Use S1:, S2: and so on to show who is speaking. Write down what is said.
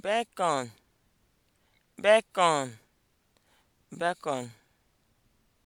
S1: bacon bacon bacon